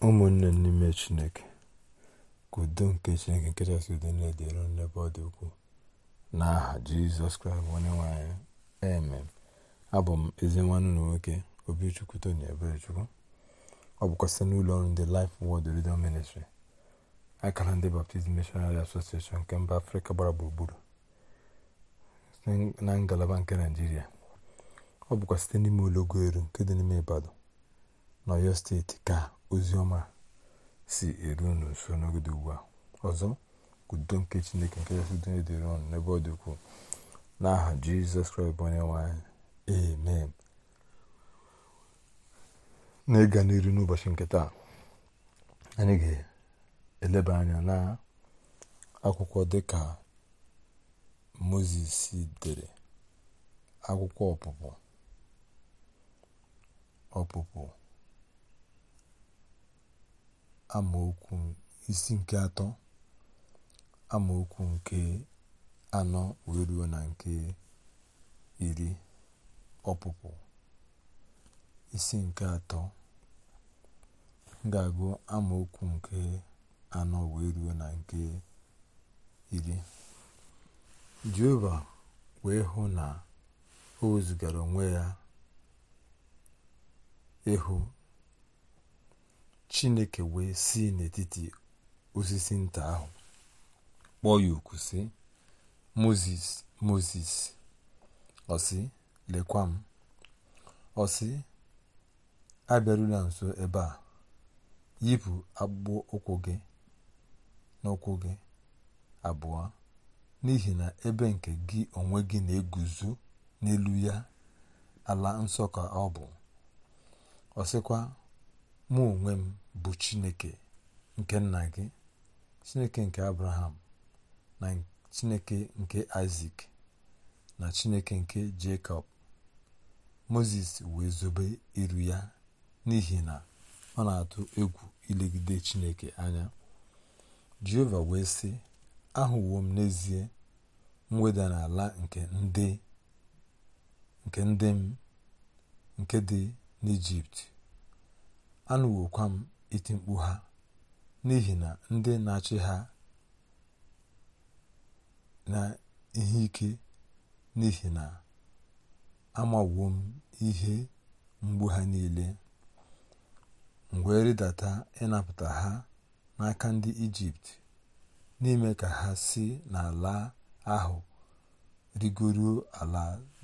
ụmụnne n'ime chineke ka nke chineke nke chasị udo na-edere n'ebe ọ dị ukwuu n'aha jizọs kraịst onye nwanyị anyị amen abụ m ezi nwanne na nwoke obichukwu tony eberechukwu ọ bụkwa site n'ụlọ ọrụ ndị Life Word Radio Ministry akara ndị Baptist Missionary Association nke mba afrịka gbara gburugburu na ngalaba nke naijiria ọ bụkwa site n'ime ụlọgoelu nke dị n'ime Ibadan n'Ọyọ steeti ka ozi si eru unu nso n'ogodo ugbu a ọzọ udo nke chineke nke kachasị dị dịrị ọnụ n'ebe ọ dị ukwuu n'aha jizọs kraịst onye nwanyị amen ịga n'iru n'ụbọchị nke taa anyị ga-eleba anya na akwụkwọ dịka moses dere akwụkwọ ọpụpụ ọpụpụ amaokwu isi nke atọ amaokwu nke anọ wee ruo na nke iri ọpụpụ isi nke atọ ga-agụ amaokwu nke anọ wee ruo na nke iri jehova wee hụ na o wezugara onwe ya ịhụ chineke wee si n'etiti osisi nta ahụ kpọọ ya oku si moses moses ọsị lekwa m ọsị abịarula nso ebe a yipụ akpụkpọ ụkwụ gị n'ụkwụ gị abụọ n'ihi na ebe nke gị onwe gị na-eguzo n'elu ya ala nsọ ka ọ bụ ọsịkwa. mụ onwe m bụ chineke nke nna gị chineke nke abraham na chineke nke isak na chineke nke jacob moses wee zobe iru ya n'ihi na ọ na-atụ egwu ilegide chineke anya jehova wee sị ahụwo m n'ezie mweda n'ala nke ndị nke m nke dị n'ijipt anụwokwa m iti mkpu ha n'ihi na ndị na-achị ha na ihe ike n'ihi na amawo m ihe mgbu ha niile mgbe rịdata ịnapụta ha n'aka ndị ijipt n'ime ka ha si n'ala ahụ rigoruo ala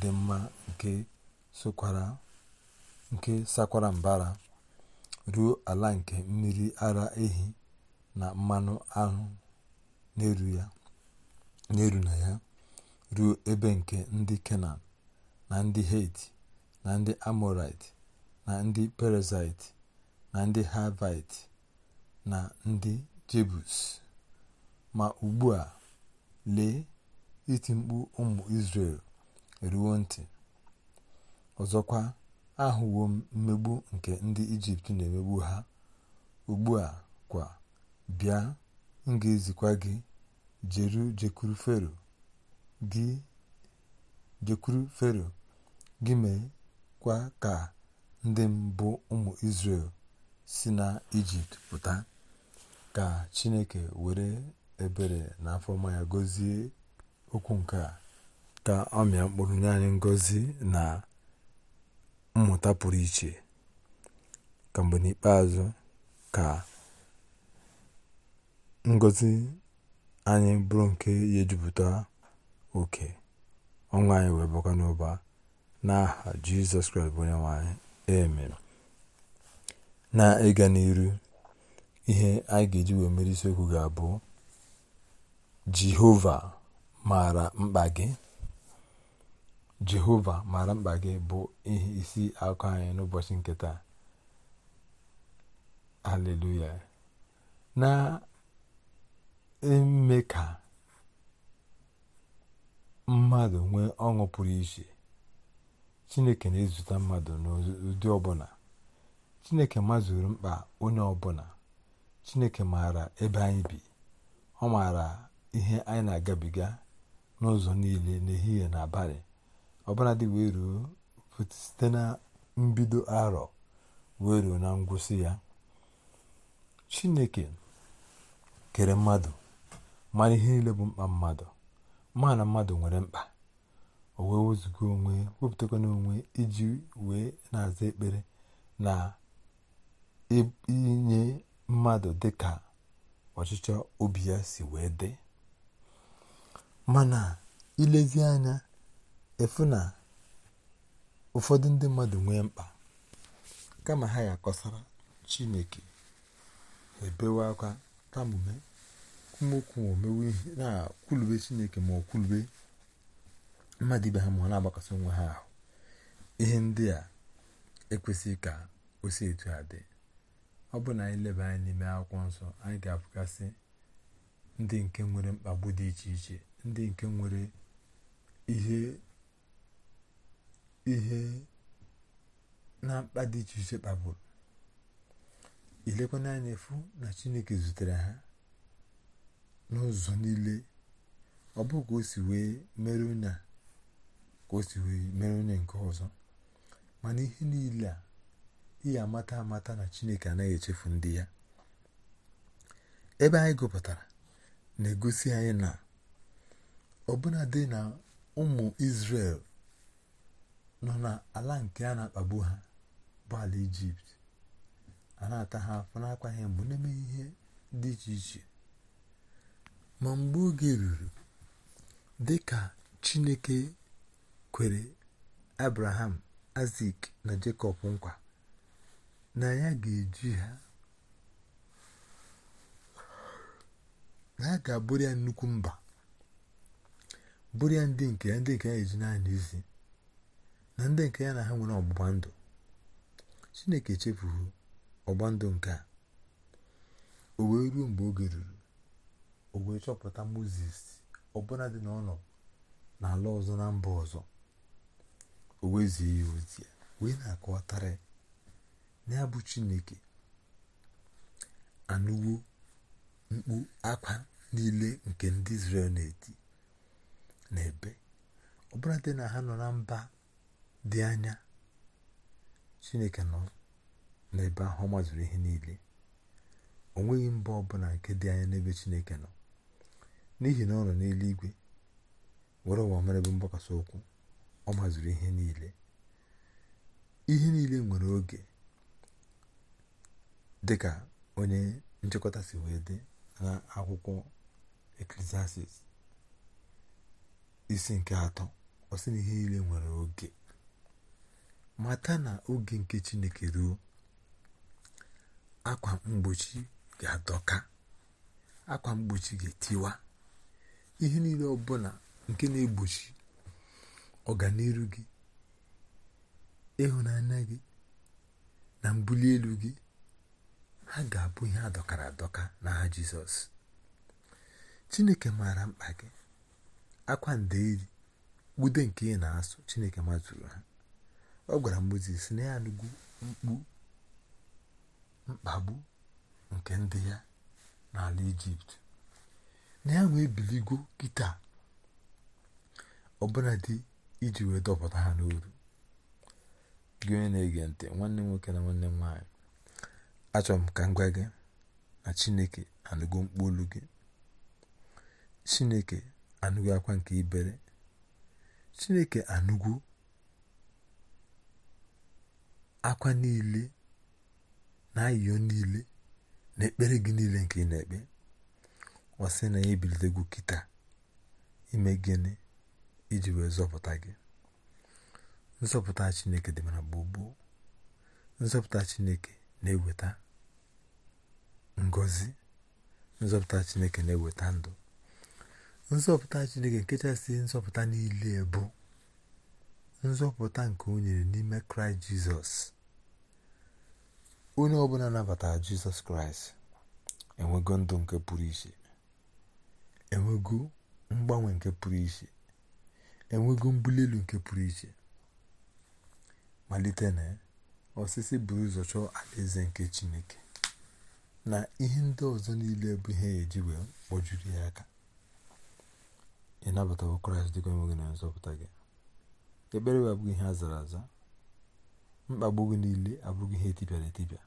dị mma nke sakwara mbara ruo ala nke mmiri ara ehi na mmanụ aṅụ na-eru na ya ruo ebe nke ndị kenan na ndị heti na ndị amọrait na ndị perezait na ndị havait na ndị jebus ma ugbu a lee iti mkpu ụmụ isrel eruwo ntị ọzọkwa ahụwo m mmegbu nke ndị ijipt na-emegbu ha ugbu a kwa bịa m ga-ezikwa gị jeru jekwuru fero gị jekwuru fero gị kwa ka ndị mbụ ụmụ israel si na ijipt pụta ka chineke were ebere na afọma ya gọzie okwu nke a ka ọ mịa mkpụrụ nye anyị ngọzi na mmụta pụrụ iche ka n'ikpeazụ ka ngozi anyị bụrụ nke ihe ejupụta oke ọnwa anyị wee bakwa n'ụba n'aha jizọs kraịst bụ onye nwanyị anyị amen na ịga n'iru ihe anyị ga-eji wee mere isiokwu ga-abụ jehova maara mkpa gị jehova mara mkpa gị bụ ihe isi akụ anyị n'ụbọchị nke taa haleluya na eme ka mmadụ nwee ọṅụ pụrụ iche chineke na-ezute mmadụ n'ụdị ọbụla chineke mazuru mkpa onye ọbụla chineke maara ebe anyị bi ọ maara ihe anyị na-agabiga n'ụzọ niile n'ehihie na abalị ọbụladị wee ruo site na mbido arọ wee ruo na ngwụsị ya chineke kere mmadụ mara ihe niile bụ mkpa mmadụ ma na mmadụ nwere mkpa o wee wezugo onwe na onwe iji wee na-aza ekpere na inye mmadụ dị ka ọchịchọ obi ya si wee dị mana ilezi anya efu na ụfọdụ ndị mmadụ nwee mkpa kama ha ya Chineke ha ebewe akwa tamume okwu omewe ihe na-akwulube Chineke ma ọ kwulube mmadụ ibe ha ma ọ na agbakọsị onwe ha ahụ ihe ndị a ekwesịghị ka o si etu ha dị ọ bụ na anyị leba anya n'ime akwụkwọ nsọ anyị ga-abụgasị ndị nke nwere mkpagbu dị iche iche ndị nke nwere ihe ihe na mkpa dị iche iche kpagburu ilekwana anya efu na chineke zutere ha n'ụzọ niile ọ bụ ka o si wee mere onye ka o si wee mere onye nke ọzọ mana ihe niile a ihe amata amata na chineke anaghị echefu ndị ya ebe anyị gụpụtara na-egosi anyị na ọbụnadị na ụmụ Izrel nọ n'ala nke a na-akpagbu ha bụ ala ijipt a na-ata ha afọ n'akwa ha mgbe na ihe dị iche iche ma mgbe oge ruru dị ka chineke kwere abraham azik na jekọb nkwa na ya ga-eji ha na ya ga-abụrụ ya nnukwu mba bụrụ ya ndị nke ya ndị nke ya eji naanị isi na ndị nke ya na ha nwere ọgbụgba ndụ chineke chefuru ọgba ndụ nke a o wee ruo mgbe oge ruru o wee chọpụta moses ọbụla dị n'ụlọ n'ala ọzọ na mba ọzọ o wezie ya ozi ya wee na-akọwatara ya bụ chineke anụwo mkpu akwa niile nke ndị Izrel na-eti n'ebe ọbụladị na ha nọ na mba dị anya chineke nọ n'ebe ahụ ọ mazụrụ ihe niile o nweghị mba ọbụla nke dị anya n'ebe chineke nọ n'ihi na ọ nọ n'eluigwe were ụwa mere ebe mgbakasị ụkwụ ọ mazụrụ ihe niile ihe niile nwere oge dị ka onye nchịkọta si wee dị na akwụkwọ eklesiasis isi nke atọ ọ sị na ihe niile nwere oge mata na oge nke chineke ruo akwa mgbochi ga-adọka akwa mgbochi ga-etiwa ihe niile ọbụla nke na-egbochi ọganiru gị ịhụnanya gị na mbuli elu gị ha ga-abụ ihe adọkara adọka na ha jizọs chineke maara mkpa gị akwa ndeeri gbude nke ị na-asụ chineke mazuru ha ọ gwara Mozis na ya anụgo mkpagbu nke ndị ya n'ala ijipt na ya nwee biligo kịta ọbụla dị iji wee dọpụta ha n'oru gị onye na-ege ntị nwanne nwoke na nwanne m nwaanyị achọrọ m ka m gwa gị na chineke anụgo mkpu olu gị chineke anụgo akwa nke ibere chineke anụgwo akwa niile na ayịyọ niile na ekpere gị niile nke ị na-ekpe ọ na ya ebilitego kịta ime gịnị iji wee zọpụta gị nzọpụta chineke dị mara gbogbo nzọpụta chineke na-eweta ngozi nzọpụta chineke na-eweta ndụ nzọpụta chineke nkechasị nzọpụta niile bụ nzọpụta nke o nyere n'ime kraịst jizọs onye ọbụla nabatara jizọs kraịst enwego ndụ nke pụrụ iche enwego mgbanwe nke pụrụ iche enwego mbuli elu nke pụrụ iche malite na osisi buru ụzọ chọọ alaeze nke chineke na ihe ndị ọzọ niile bụ ihe ya e eji wee kpọjuru ya aka ịnabatawo kraịst dịka onwe gị na nzọpụta gị ekpere wee abụghị ihe a zara aza mkpagbu gị niile abụghị ihe etipịara etipịa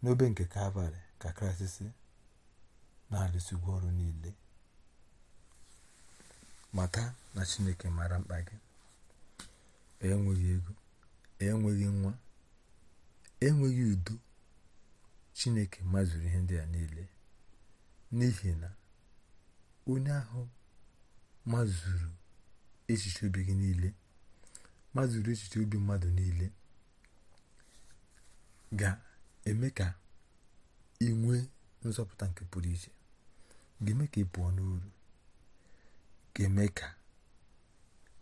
n'obe nke kalvarị ka kraịst si na-alụsigwo ọrụ niile mata na chineke mara mkpa gị enweghị ego enweghị nwa enweghị udo chineke mazuru ihe ndị a niile n'ihi na onye ahụ mazuru echiche obi gị mazuru echiche obi mmadụ niile ga-eme ka ị nwee nzọpụta nke pụrụ iche ga-eme ka ị pụọ n'uru ga-eme ka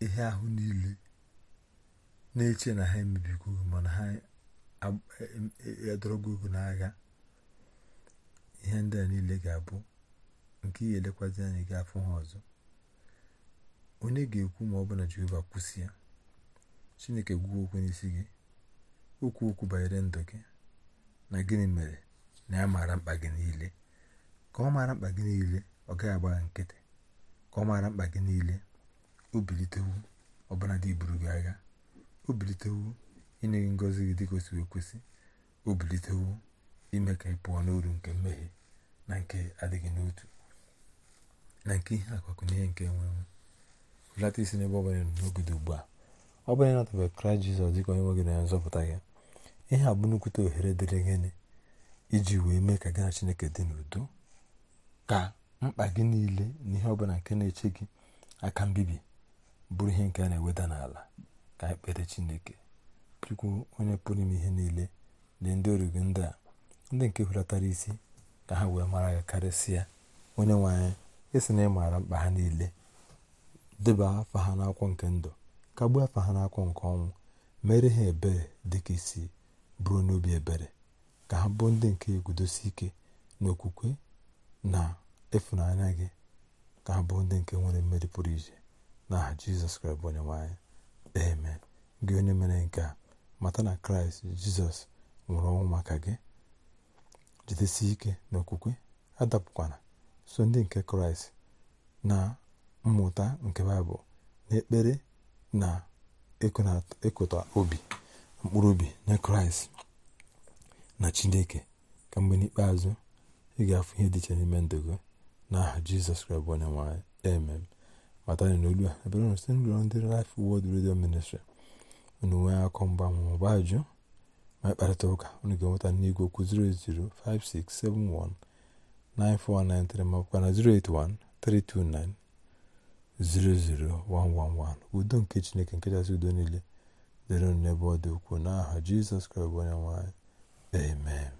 ihe ahụ niile na-eche na ha emebigo mana ha edorogo e-, ogo n'agha ihe ndị a niile ga-abụ nke ihe elekwazi anyị ga afọ ha ọzọ onye ga-ekwu ma ọ bụ na Jehova kwụsị ya Chineke gwuo okwu n'isi gị okwu okwu banyere ndụ gị na gịnị mere na ya maara mkpa gị niile ka ọ maara mkpa gị niile ọ gaghị agba nkịtị ka ọ maara mkpa gị niile obilitewu bilitewu ọbụla dị buru gị agha obilitewu inye gị ngozi gị dịka o si ekwesị ime ka ị pụọ n'oru nke mmehie na nke adịghị n'otu na nke ihe akwakwụnye nke enwenwe hụlata isi n'ebe ọ bụla n'obodo ugbu a ọ bụla ịnatabeghị kraịst jizọs dịka onye nwe gị na nzọpụta gị ihe a bụ nnukwute ohere dịrị gịnị iji wee mee ka gị na chineke dị n'udo ka mkpa gị niile na ihe ọbụla nke na-eche gị aka mbibi bụrụ ihe nke a na-eweda n'ala ka ekpere kpere chineke chukwu onye pụrụ ime ihe niile na ndị origo ndị a ndị nke hulatara isi ka ha wee mara gị karịsịa onye nwe anyị esi na ịmara mkpa ha niile deba afa ha n'akwụkwọ nke ndụ kagbuo afa ha n'akwụkwọ nke ọnwụ mere ha ebere dịka isi bụrụ n'obi ebere ka ha bụ ndị nke egudosi ike n'okwukwe na ịfụnanya gị ka ha bụ ndị nke nwere mmeri pụrụ iche na jizọs kraịst onye nwanyị amen gị onye mere nke a mata na kraịst jizọs nwụrụ ọnwụ maka gị jidesi ike n'okwukwe adapụkwana so ndị nke kraịst na mmụta nke baịbụl na ekpere na ịkụta obi mkpụrụ obi nye kraịst na chineke ka mgbe n'ikpeazụ ị ga-afụ ihe dị n'ime ndụ gị n'aha jizọs kraịst bụ onye nwanyị emem matara na olu a ebere na site n'ụlọ ndị Life Word Radio Ministry unu nwee akọ mgbanwe maọbụ ajụ ma ịkparịta ụka unu ga-enweta n'igwe okwu 00567194193 ma ọbụkwa na 08132900111 udo nke chineke nke kachasị udo niile dịrị n'ebe ọ dị ukwuu n'aha jizọs kraịst bụ onye nwanyị amen